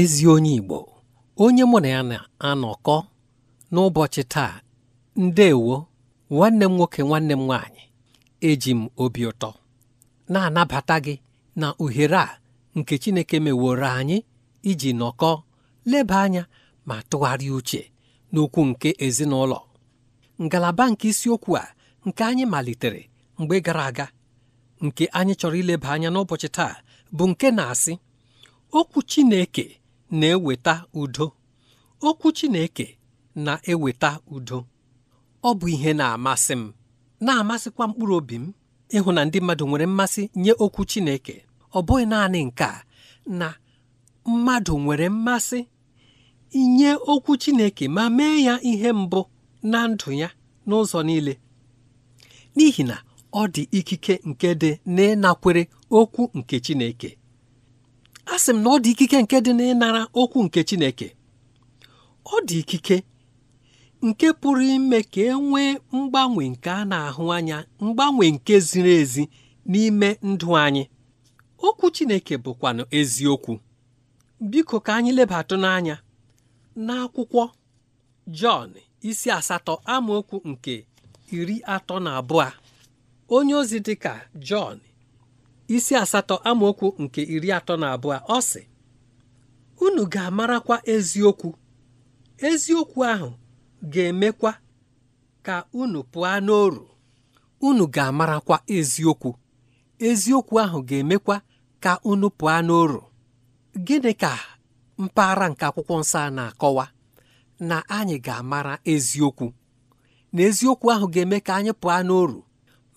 ezi onye Igbo onye mụ na ya na-anọkọ n'ụbọchị taa ndeewo nwanne m nwoke nwanne m nwaanyị eji m obi ụtọ na-anabata gị na ohere a nke Chineke meworo anyị iji nọkọ leba anya ma tụgharịa uche n'okwu nke ezinụlọ ngalaba nke isiokwu a nke anyị malitere mgbe gara aga nke anyị chọrọ ileba anya n'ụbọchị taa bụ nke na-asị okwu Chineke na-eweta udo okwu Chineke na-eweta udo ọ bụ ihe na-amasị m na-amasịkwa mkpụrụ obi m ịhụ na ndị mmadụ nwere mmasị nye okwu Chineke ọ bụghị naanị nke a na mmadụ nwere mmasị inye okwu Chineke ma mee ya ihe mbụ na ndụ ya n'ụzọ niile n'ihi na ọ dị ikike nke dị n'ịnakwere okwu nke Chineke a sị m na ọ dị ikike nke dị n'ịnara okwu nke Chineke ọ dị ikike nke pụrụ ime ka e nwee mgbanwe nke a na-ahụ anya mgbanwe nke ziri ezi n'ime ndụ anyị okwu Chineke bụkwanụ eziokwu biko ka anyị lebatụ n'anya n'akwụkwọ Jọn isi asatọ amaokwu nke iri atọ na abụọ onye ozi dịka Jọn isi asatọ amaokwu nke iri atọ na abụọ ọ sị unu ga-amarakwa eziokwu eziokwu ahụ ga-emekwa ka unu pụọ n'oru unu ga-amarakwa eziokwu eziokwu ahụ ga-emekwa ka unu pụọ n'oru gịnị ka mpaghara nke akwụkwọ nsọ na-akọwa na anyị ga-amara eziokwu na eziokwu ahụ ga-eme ka anyị pụọ n'oru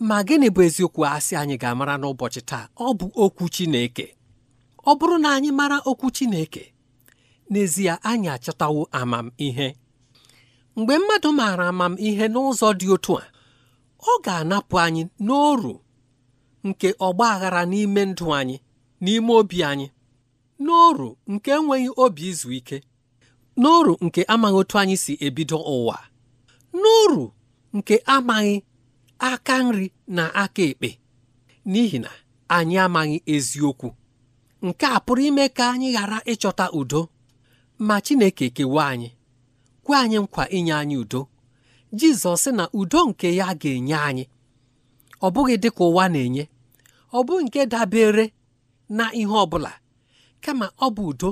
ma gịnị bụ eziokwu asị anyị ga-amara n'ụbọchị taa ọ bụ okwu Chineke ọ bụrụ na anyị mara okwu Chineke n'ezie anyị achọtawo amamihe mgbe mmadụ maara amamihe n'ụzọ dị otu a ọ ga-anapụ anyị n'oru nke ọgba aghara n'ime ndụ anyị n'ime obi anyị n'oru nke enweghị obi izu ike n'oru nke amaghị otu anyị si ebido ụwa n'oru nke amaghị aka nri na aka ekpe n'ihi na anyị amaghị eziokwu nke a pụrụ ime ka anyị ghara ịchọta udo ma Chineke kewa anyị kwe anyị nkwa inye anyị udo Jizọs sị na udo nke ya ga-enye anyị ọ bụghị dị ka ụwa na-enye ọ bụ nke dabere na ihe ọ bụla kama ọ bụ udo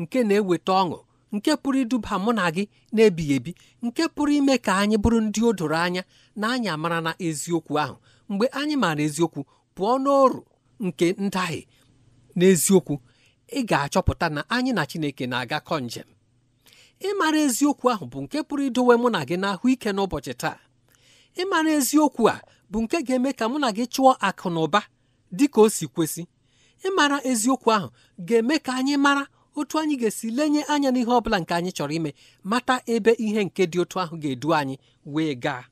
nke na-eweta ọṅụ nke pụrụ iduba mụ na gị na-ebighị ebi nke pụrụ ime ka anyị bụrụ ndị o doro anya na anyị amara na eziokwu ahụ mgbe anyị maara eziokwu pụọ n'ọrụ nke ndahie n'eziokwu ị ga-achọpụta na anyị na Chineke na-agakọ njem ịmara eziokwu ahụ bụ nke pụrụ idowe mụ na gị n'ahụ ike n'ụbọchị taa ịmara eziokwu a bụ nke ga-eme ka mụ na gị chụọ akụ na ụba dị ka o si kwesị ịmara eziokwu ahụ ga-eme ka anyị mara otu anyị ga-esi lenye anya n'ihe ọ bụla nke anyị chọrọ ime mata ebe ihe nke dị otu ahụ ga-edu anyị wee gaa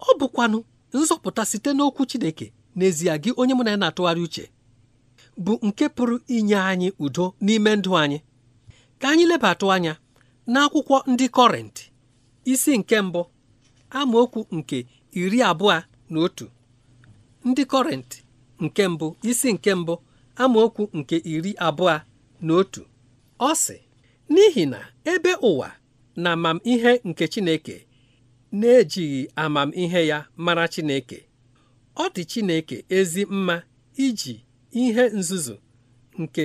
ọ bụkwanụ nzọpụta site n'okwu Chineke n'ezie gị onye mụ na ya na-atụgharị uche bụ nke pụrụ inye anyị udo n'ime ndụ anyị ka anyị lebatụ anya n'akwụkwọ ndị kọrentị isi nke mbụ amaokwu nke iri abụọ na otu ndị kọrentị nke mbụ isi nke mbụ amaokwu nke iri abụọ na otu ọ sị n'ihi na ebe ụwa na amamihe nke Chineke na-ejighị amamihe ya mara Chineke ọ dị Chineke ezi mma iji ihe nzuzu nke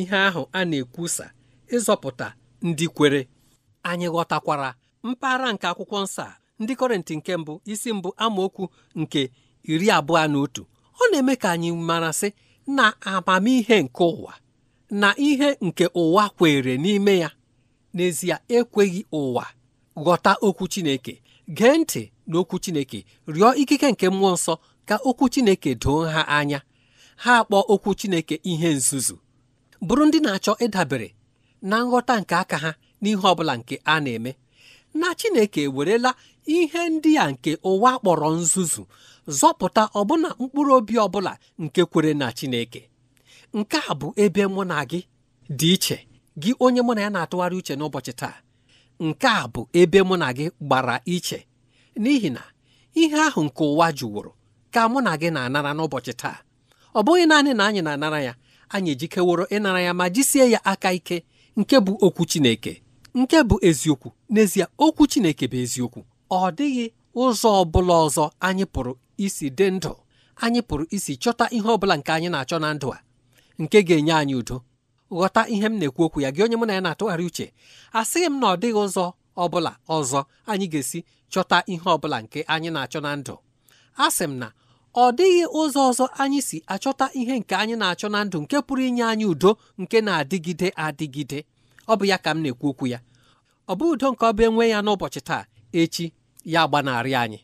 ihe ahụ a na-ekwusa ịzọpụta ndị kwere anyị ghọtakwara mpaghara nke akwụkwọ nsọ a ndị Kọrịntị nke mbụ isi mbụ amaokwu nke iri abụọ na otu ọ na-eme ka anyị mara sị na amamihe nke ụwa na ihe nke ụwa kwere n'ime ya n'ezie ekweghị ụwa ghọta okwu Chineke gee ntị n'okwu Chineke rịọ ikike nke mmụọ nsọ ka okwu Chineke doo ha anya ha akpọ okwu Chineke ihe nzuzu bụrụ ndị na-achọ ịdabere na nghọta nke aka ha n'ihe ọbụla nke a na-eme na Chineke ewerela ihe ndị a nke ụwa kpọrọ nzuzu zọpụta ọbụna mkpụrụ obi ọbụla nke kwere na Chineke nke a bụ ebe mụ na gị dị iche gị onye mụ na ya na-atụgharị uche n'ụbọchị taa nke a bụ ebe mụ na gị gbara iche n'ihi na ihe ahụ nke ụwa jụwụrụ ka mụ na gị na-anara n'ụbọchị taa ọ bụghị naanị na anyị na-anara ya anyị ejikeworo ịnara ya ma jisie ya aka ike nke bụ okwu Chineke nke bụ eziokwu n'ezie okwu Chineke bụ eziokwu ọ dịghị ụzọ ọ bụla ọzọ anyị pụrụ isi dị ndụ anyị pụrụ isi chọta ihe ọ bụla nke anyị na-achọ na ndụ a nke ga-enye anyị udo ghọta ihe m na-ekwu okwu ya gị onye mụ na ya na-atụgharị uche asịghị m na ọ dịghị ụzọ ọ bụla ọzọ anyị ga-esi chọta ihe ọ bụla nke anyị na-achọ na ndụ asị m na ọ dịghị ụzọ ọzọ anyị si achọta ihe nke anyị na-achọ na ndụ nke pụrụ inye anyị udo nke na-adịgide adịgide ọ bụ ya ka m na-ekwu okwu ya ọ bụ udo nke ọ bụ enwe ya n'ụbọchị taa echi ya gbanarị anyị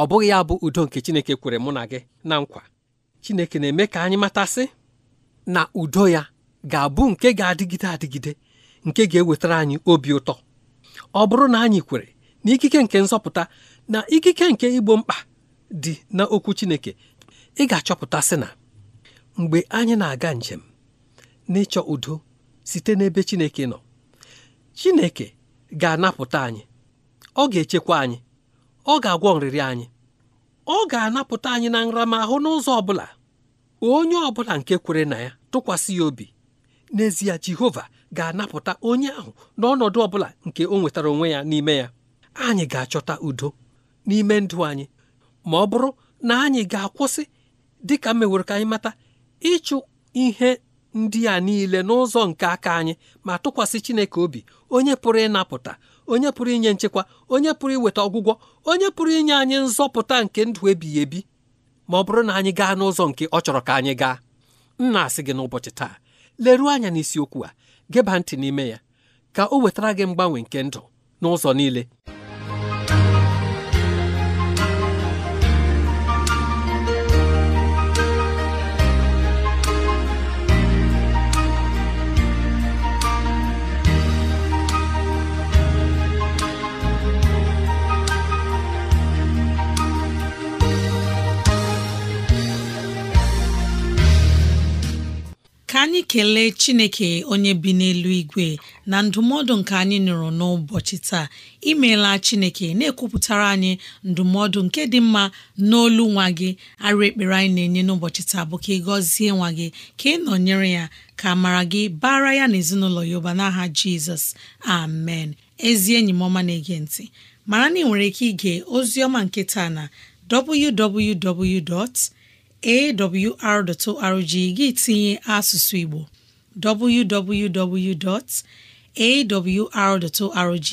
ọ bụghị ya bụ udo nke Chineke kwere mụ na gị na nkwa Chineke na-eme ka anyị matasị na udo ya ga-abụ nke ga-adịgide adịgide nke ga-ewetara anyị obi ụtọ ọ bụrụ na anyị kwere na ikike nke nzọpụta na ikike nke igbo mkpa dị n'okwu Chineke ị ga-achọpụta sị na mgbe anyị na-aga njem n'ịchọ udo site n'ebe Chineke nọ Chineke ga-anapụta anyị ọ ga-echekwa anyị ọ ga-agwọ nrịrị anyị ọ ga-anapụta anyị na nramahụ n'ụzọ ọ bụla onye ọ bụla nke kwere na ya tụkwasị ya obi n'ezie Jehova ga-anapụta onye ahụ n'ọnọdụ ọ bụla nke o nwetara onwe ya n'ime ya anyị ga-achọta udo n'ime ndụ anyị ma ọ bụrụ na anyị ga-akwụsị dị ka mewere ka anyị mata ịchụ ihe ndị a niile n'ụzọ nke aka anyị ma tụkwasị Chineke obi onye pụrụ ịnapụta onye pụrụ inye nchekwa onye pụrụ iweta ọgwụgwọ onye pụrụ inye anyị nzọpụta nke ndụ ebighị ebi ma ọ bụrụ na anyị gaa n'ụzọ nke ọ chọrọ ka anyị gaa m na-asị gị n'ụbọchị taa leruo anya n'isiokwu a geba ntị n'ime ya ka o wetara gị mgbanwe nke ndụ n'ụzọ niile kelee ekele Chineke onye bi n'elu igwe na ndụmọdụ nke anyị nụrụ n'ụbọchị taa imeela Chineke na-ekwupụtara anyị ndụmọdụ nke dị mma n'olu nwa gị arụ ekpere anyị na-enye n'ụbọchị taa bụ ka ị gọzie nwa gị ka ị nọnyere ya ka mara gị bara ya na ezinụlọ ya ụba n'aha Jizọs amen ezi enyi m ọma na-ege ntị mara na ị nwere ike ige ozi ọma nke taa na www. awr.org gị tinye asụsụ Igbo www.awr.org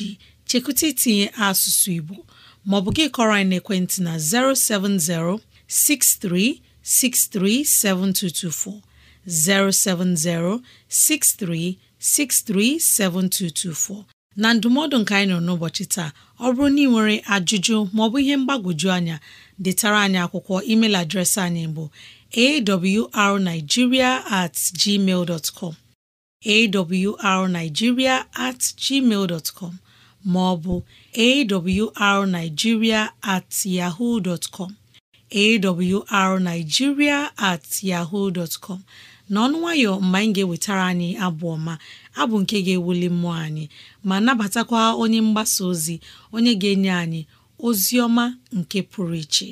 chekwute itinye asụsụ Igbo maọbụ gị kọrọ anyị n'ekwentị na 070 6363 7224 070 6363 7224 na ndụmọdụ nke anyị nọ n'ụbọchị taa ọ bụrụ na ị nwere ajụjụ maọbụ ihe mgbagwoju anya detara anyị akwụkwọ email adreesị anyị bụ awrnigeria at com at com ma ọ bụ awrnigeria at na com at yaho com n'ọnụ nwayọ mgbe anyị ga-ewetara anyị abụ ọma abụ nke ga-ewuli mmụọ anyị ma nabatakwa onye mgbasa ozi onye ga-enye anyị Ozioma nke pụrụ iche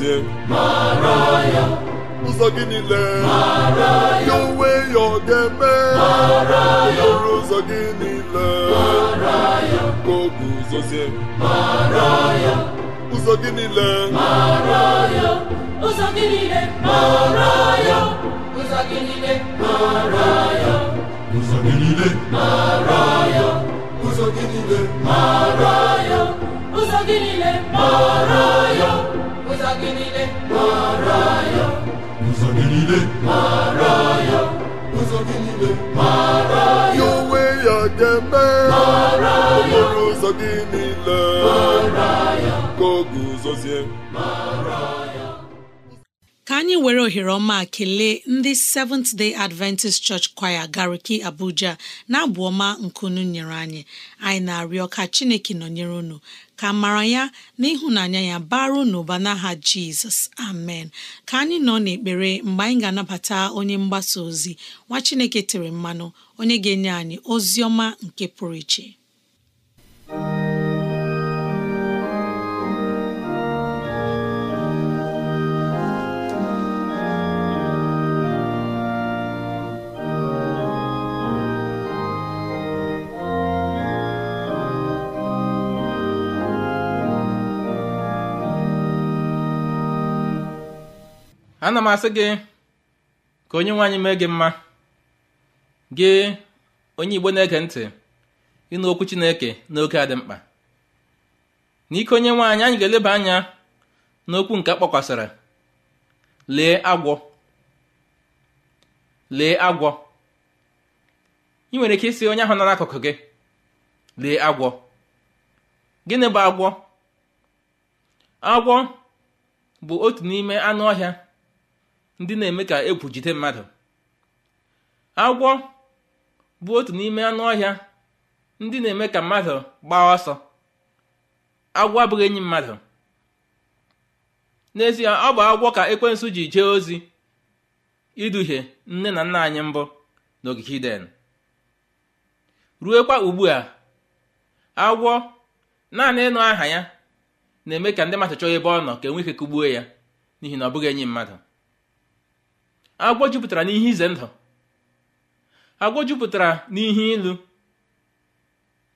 n'ezie ụzọ gị niile ya onwe ya ọ ga-eme ọrụ ụzọ gị niile ka o guzozie ụzọ gị niile ụzọ gị niile ụzọ ụzọ gị niile mara ya ụzọ gị niile mara ya ụzọ gị niile mara ya onwe ya ga-eme mara ya ụzọ gị niile mara ya ka o guzozie mara ya anyị were ohere ọma kelee ndị Seventh Day Adventist Church Choir Gariki Abuja na-abụ ọma unu nyere anyị anyị na-arịọ ka Chineke nọnyere unu ka mara ya na ịhụnanya ya baru n'ụba n'aha Jizọs amen ka anyị nọ n'ekpere mgbe anyị ga-anabata onye mgbasa ozi nwa Chineke tere mmanụ onye ga-enye anyị ozi ọma nke pụrụ iche ana m asị gị ka onye nwe anyị mee gị mma gị onye igbo na-ege ntị ịnụ okwu chineke n'oge a dị mkpa n'ike onye nwe anyị anyị ga-eleba anya n'okwu nke kpọkwasịrị lee agwọ lee agwọ ị nwere ike isi onye ahụ nara n'akụkụ gị lee agwọ gịnị bụ agwọ agwọ bụ otu n'ime anụ ọhịa ndị na-eme ka egwu jide mmadụ agwọ bụ otu n'ime anụ ọhịa ndị na-eme ka mmadụ gbaa ọsọ agwọ abụghị enyi mmadụ n'ezie ọ bụ agwọ ka ekwensu ji jee ozi iduhie nne na nna anyị mbụ n'ogige ruo kwa ugbu a agwọ naanị ịnụ aha ya na-eme ka ndị mmadụ ebe ọ nọ ka enwe ike ya n'ihi na ọ bụghị enyi mmadụ agwọ jupụtara n'ihe ize ndụ agwọ jupụtara n'ihe ilu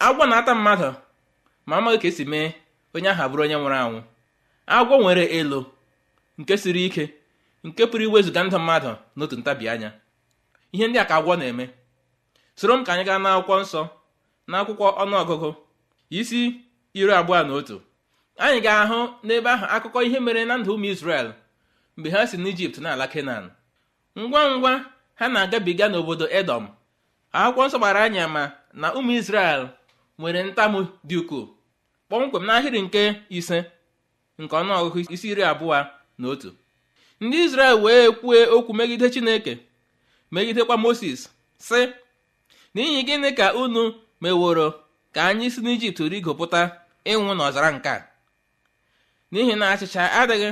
agwọ na-ata mmadụ ma amaghị ka esi mee onye ahụ abụrụ onye nwụrụ anwụ agwọ nwere elu nke siri ike nke pụrụ iwezụga ndụ mmadụ n'otu ntabi anya ihe ndị a ka agwọ na-eme soro m ka anyị gaa n'akwụkwọ nsọ n'akwụkwọ ọnụọgụgụ isi iri abụọ na otu anyị ga-ahụ n'ebe ahụ akụkọ ihe mere na ndụ ụmụ Israel mgbe ha si n'Ijipt na ala Kenan ngwa ngwa ha na-agabiga n'obodo edom akwụkwọ nsọ gbara anya ma na ụmụ israel nwere ntamu dị ukwuu kpọmkwem n'ahịrị nke ise nke ọnụọgụgụ isi iri abụọ na otu ndị israel wee kwue okwu megide chineke megidekwa moses sị n'ihi gịnị ka unu meworo ka anyị si n'ijipt rigopụta ịnwụ n'ọzara nke a n'ihi na achịcha adịghị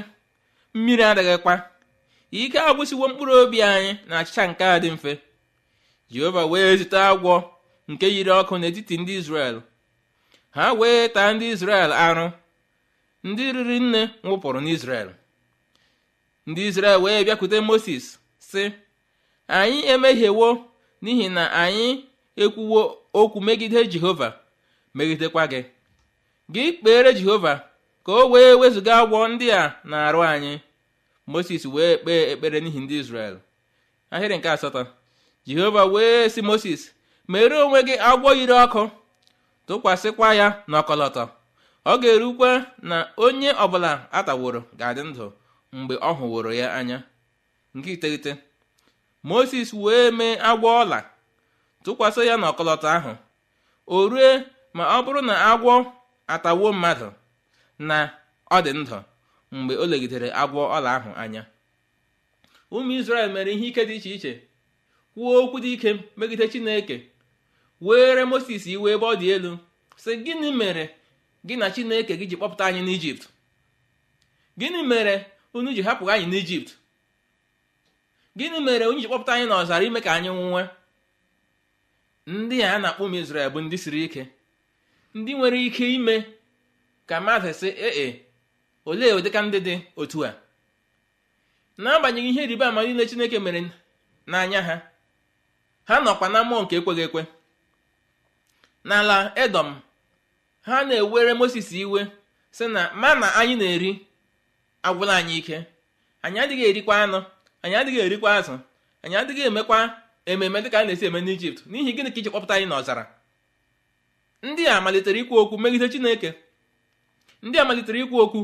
mmiri adịghịkwa ike agwụsiwo mkpụrụ obi anyị na achịcha nke a dị mfe jehova wee zute agwọ nke yiri ọkụ n'etiti ndị izrel ha wee taa ndị izrel arụ ndị riri nne nwụpụrụ n'izrel ndị izrel wee bịakwute moses sị anyị emehiewo n'ihi na anyị ekwuwo okwu megide jehova megidekwa gị gị kpere jehova ka o wee wezụga agwọ ndị a na-arụ anyị moses wee kpee ekpere n'ihi ndị israel ahịrị nke asatọ jehova wee sị moses mere onwe gị agwọ yiri ọkụ tụkwasịkwa ya n'ọkọlọtọ ọ ga-erukwe na onye ọbụla ataworo ga-adị ndụ mgbe ọ hụworo ya anya nke iteghete moses wee mee agwọ ọla tụkwasị ya n'ọkọlọtọ ahụ o rue ma ọ bụrụ na agwọ atawo mmadụ na ọ dị ndụ mgbe o legidere agwọ ọla ahụ anya ụmụ isrel mere ihe ike dị iche iche kwuo okwu dị ike megide Chineke were Moses iwe ebe ọ dị elu sị gịnị mere gị na Chineke gị ji kpọpụta anyị n'Ijipt gịnị mere unu ji hapụ anyị n'Ijipt gịnị mere unu ji kpọpụta anyị n'ọzara ime ka anyị nwụwe ndị a na-akpọ ụmụ Izrel bụ ndị siri ike ndị nwere ike ime ka mmadụ si ee olee ụdịka ndị dị otu a n'agbanyeghị ihe ịrịba ama niile Chineke mere n'anya ha ha nọkwa na mmụọ nke ekweghị ekwe n'ala Edọm ha na-ewere Moses iwe sị na ma na anyị na-eri agwụla anyị ike anyị adịghị erikwa anụ anyị adịghị erikwa azụ anyị adịghị emekwa ememe dịka a na-esi eme n'Ijipt n'ihi gịnị ka iji kpọpụta anyị n'ọzara ndị a malitere ikwu okwu megide Chineke ndị a malitere ikwu okwu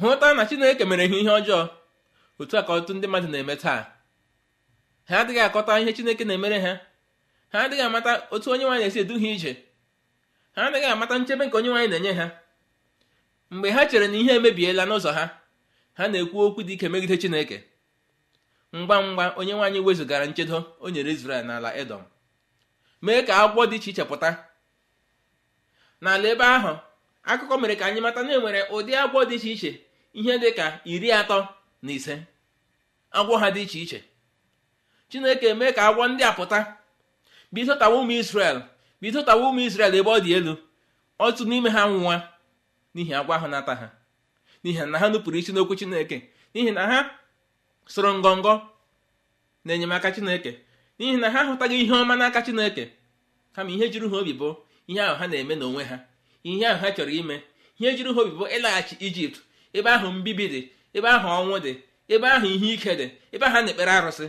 hụta na chineke mere ha ihe ọjọọ otu a ka ọtụtụ ndị mmadụ na-eme taa ha adịghị akọta ihe chineke na-emere ha ha adịghị amata otu onye nwaanyị na-esi edu ha ije ha adịghị amata nchebe nke onye nwaanyị na-enye ha mgbe ha chere na ihe emebiela n'ụzọ ha ha na-ekwu okwu dị ike megide chineke ngwa ngwa onye nwaanyị wezụgara nchedo o nyere Izrel n'ala Edọm mee ka agwọ dị iche iche pụta n'ala ebe ahụ akụkọ mere ka anyị mata na e nwere ụdị agwọ dị iche iche ihe dị ka iri atọ na ise agwọ ha dị iche iche chineke mee ka agwọ ndị a pụta bido tawa ụmụ isrel bido tawa ụmụ isrel ebe ọ dị elu otu n'ime ha nwụwa n'ihi agwọ ahụ nata ha n'ihi na ha nupụrụ isi n'okwu chineke n'ihi na ha soro ngọngọ na enyemaka chineke n'ihi na ha hụtaghị ihe ọma n'aka chineke kama ihe jiri ha obi bụ ihe ahụ ha na-eme n'onwe ha ihe ahụ ha chọrọ ime ihe juru ha obi bụ ịlaghachi ijipt ebe ahụ mbibi dị ebe ahụ ọnwụ dị ebe ahụ ihe ike dị ebe ahụ na-ekpere arụsị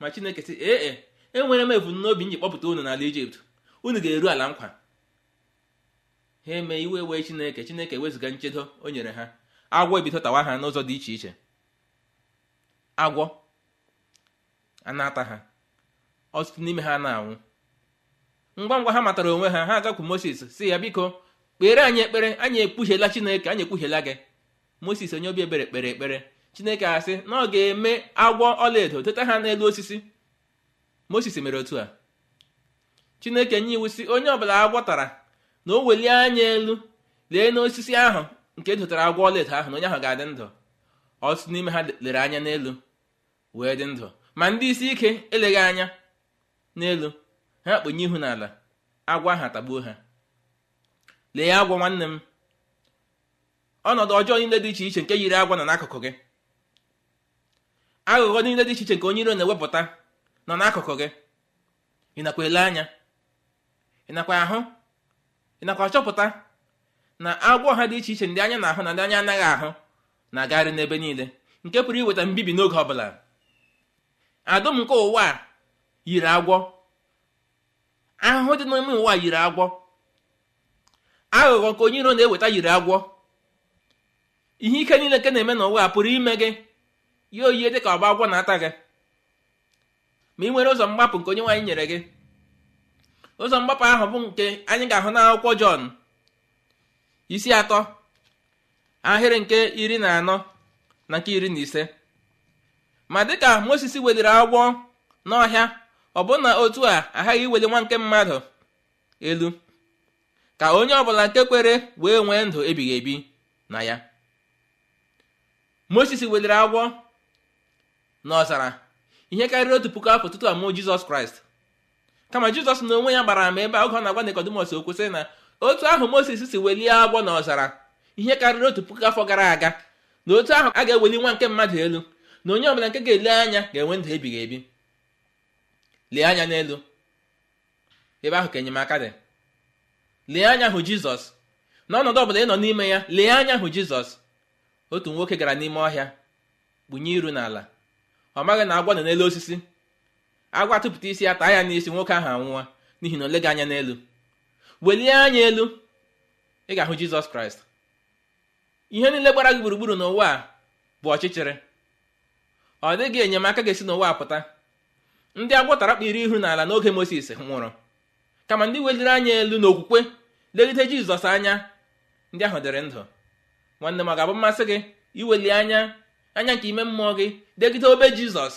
ma chineke sị ee e, enwere m ebumnobi nji kpọpụta unu n'ala ijipt unu ga-eru ala nkwa ha eme iwe wee chineke chineke wezụga nchedo o nyere ha agwọ ebido ha n'ụzọ dị iche iche agwọ anata ata ha ọtụtụ n'ime ha na-anwụ ngwa ngwa ha matara onwe ha ha agakwu moses si ya biko kpere anyị ekpere anyị ekpughela chineke anyị ekpughela gị moses onye obi ebere kpere ekpere chineke asị na ọ ga-eme agwọ ọlaedo teta ha n'elu osisi moses mere otu a chineke nye iwu si onye ọbụla agwọ tara na o welie anya elu lee n'osisi ahụ nke zụtara agwọ ọlaedo ahụ na onye ahụ ga-adị ndụ ọtụtụ n'ime ha lere anya n'elu wee dị ndụ ma ndị isi ike eleghị anya n'elu ha kpenye ihu n'ala agwọ ahụ atagbuo ha lee ya agwọ nwanne m ọnọdụ ọjọọ niile dị iche iche nke yiri agwọ nọ n'akụkụ gị aghụghọ niile dị iche iche nke onye iro na-ewepụta nọ n'akụkụ gị ị nakwa ele anya ị nakwa ahụ ị nakwa chọpụta na agwọ ha dị iche iche ndị anya na-ahụ na ndị anya anaghị ahụ na-agagharị n'ebe niile nke pụrụ iweta mbibi n'oge ọbụla adụm nke ụwa yiri agwọ ahụhụ dị n'ime ụwa yiri agwọ aghụghọ nke onye iro na-eweta yiri agwọ ihe ike niile nke na-eme n'ụwa pụrụ ime gị ya oyie dị ka ọgba agwọ na-ata gị ma ị nwere ụzọ mgbapụ nke onye nwaanyị nyere gị ụzọ mgbapụ ahụ bụ nke anyị ga-ahụ n'akwụkwọ Jọn isi atọ ahịrị nke iri na anọ na nke iri na ise ma dịka moses weliri agwọ n'ọhịa na otu a aghaghị iweli nwa nke mmadụ elu ka onye ọbụla nke kwere wee nwee ndụ ebighị ebi na ya moses weliri agwọ n'ọzara ihe karịrị otu puku afọ tutu amụọ Jizọs Kraịst kama Jizọs na onwe ya gbara ama ebe a oge ọ na-agwa Nikọdimọs o kwesịrị na otu ahụ moses si welie agbọ na ọzara ihe karịrị otu puku afọ gara aga na otu ahụ a ga-eweli nwa nke mmadụ elu na onye ọbụla nke ga-ele anya ga-enwe ndụ ebighị ebi lee anya n'elu ebe ahụ ka enyemaka dị lee anya hụ jizọs n'ọnọdụ ọbụla ị nọ n'ime ya lee anya hụ jizọs otu nwoke gara n'ime ọhịa gbunye iru n'ala ọ maghị na agwọ nọ n'elu osisi agwa tụpụta isi ya taa ya n'isi nwoke ahụ anwụwa n'ihi na o leghị anya n'elu welie anya elu ị ga-ahụ jizọs kraịst ihe niile gbara gị gburugburu n'ụwa a bụ ọchịchịrị ọ dịghị enyemaka ga-esi n'ụwa pụta ndị agwọ tara kpiri ihu n'ala n'oge moses nwụrụ kama ndị weliri anya elu n'okwukwe legide jizọs anya ndị ahụ dịrị ndụ nwanne m ọ ga-abụ mmasị gị iweli anya anya nke ime mmụọ gị degide obe jizọs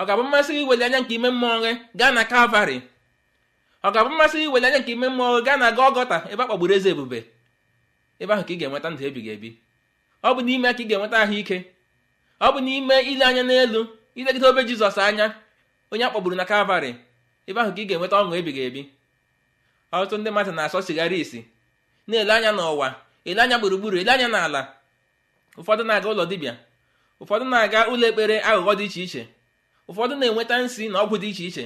ọ ga-abụ mmasị gị iweli anya nke ime mmụọ gị gaa na kalvarị ọ ga-abụ mmasị iwere anya nke ime mmụọ gaa na ọgọta ebe a kpagburu eze ebube ebe ahụ ka ị ga-enweta ndụ ebighị ebi ọ bụ n'ime ka ị ga-enweta ahụike ọ bụ n'ime ile anya n'elu ilegide obe Jizọs anya onye a na Kalvarị ebe ahụ ka ị ga-enweta ọṅụ ebighị ebi ọtụtụ ndị mmadụ na-asọ sigara isi na-ele anya n'ụwa ele anya gburugburu ele anya n'ala ụfọdụ na-aga ụlọ dibịa ụfọdụ na-aga ụlọ ekpere aghụghọ dị iche iche ụfọdụ na-enweta nsi na ọgwụ dị iche iche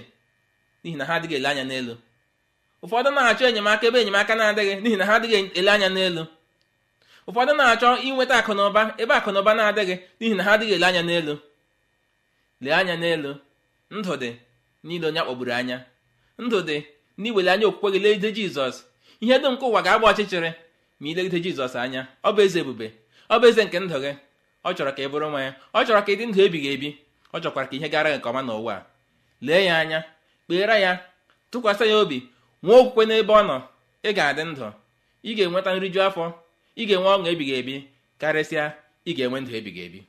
n'ihi na ha adịghị ele anya n'elu ụfọdụ na-achọ enyemaka ebe enyemaka na-adịghị n'ihi na ha adịghị ele anya n'elu ụfọdụ na-achọ inweta akụnụba ebe akụnụba na-adịghị n'ihi na ha adịghị ele anya n'elu lee anya n'elu ndụ dị n'ile onye akpọgburu anya ndụ dị n'iwele anya okwukwe gị legide jizọs ihe dum nke ụwa ga-agba ọchịchịrị ma ilegide jizọs anya ọ bụ eze ebube ọ bụ eze nke ndụ gị ọ chọrọ ka ị bụrụ nwa ya ọ chọrọ ka ndụ ebighị ebi ọ chọkwara ka ihe gara gị nke ọma n'ụwa lee ya anya kpeere ya tụkwasị ya obi nwee okwukwe n'ebe ọ nọ ị ga-adị ndụ ị ga-enweta nriju afọ ị ga-enwe ọṅụ ebighị ebi karịsịa ị ga-enwe ndụ ebighị ebi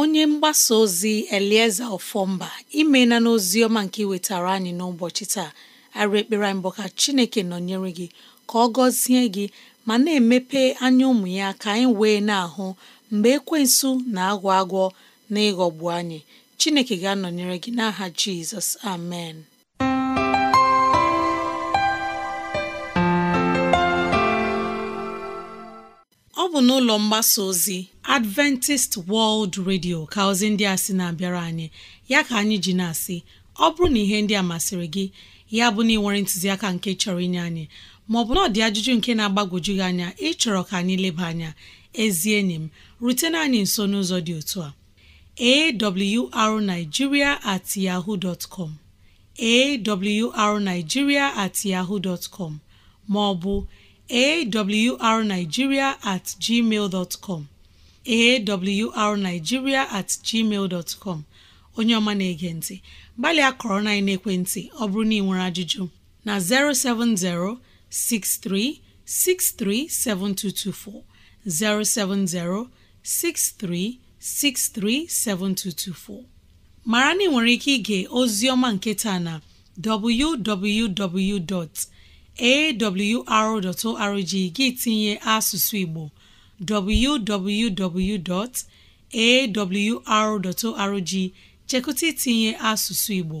onye mgbasa ozi elieze ofọmba imela n'ozi ọma nke iwetara anyị n'ụbọchị taa arụ ekpere anyị ka chineke nọnyere gị ka ọ gọzie gị ma na-emepe anya ụmụ ya ka anyị wee na-ahụ mgbe ekwensu na-agwọ agwọ na ịghọgbu anyị Chineke ga-anọnyere gị n'aha Jizọs amen ọ bụ n'ụlọ mgbasa ozi Adventist World Radio ka ozi ndị a sị na-abịara anyị ya ka anyị ji na-asị ọ bụrụ na ihe ndị a masịrị gị ya bụ na ị nwere ntụziaka nke chọrọ inye anyị maọ na ọ dị ajụjụ nke na-agbagwoju gị anya ịchọrọ ka anyị leba anya ezi enyi m rutena anyị nso n'ụzọ dị otu a awrnigeria at yahoo dot com awrnigeria at yahoo dot com maọbụ awrnigeria at gmail dot com at gmail dot com onye ọma na-ege ntị gbalịa kọrọ na ekwentị ọ bụrụ na ị nwere ajụjụ na 070 63637224 mara na ị nwere ike ige ozioma nke taa na www.awr.org gị tinye asụsụ Igbo www.awr.org chekụta itinye asụsụ Igbo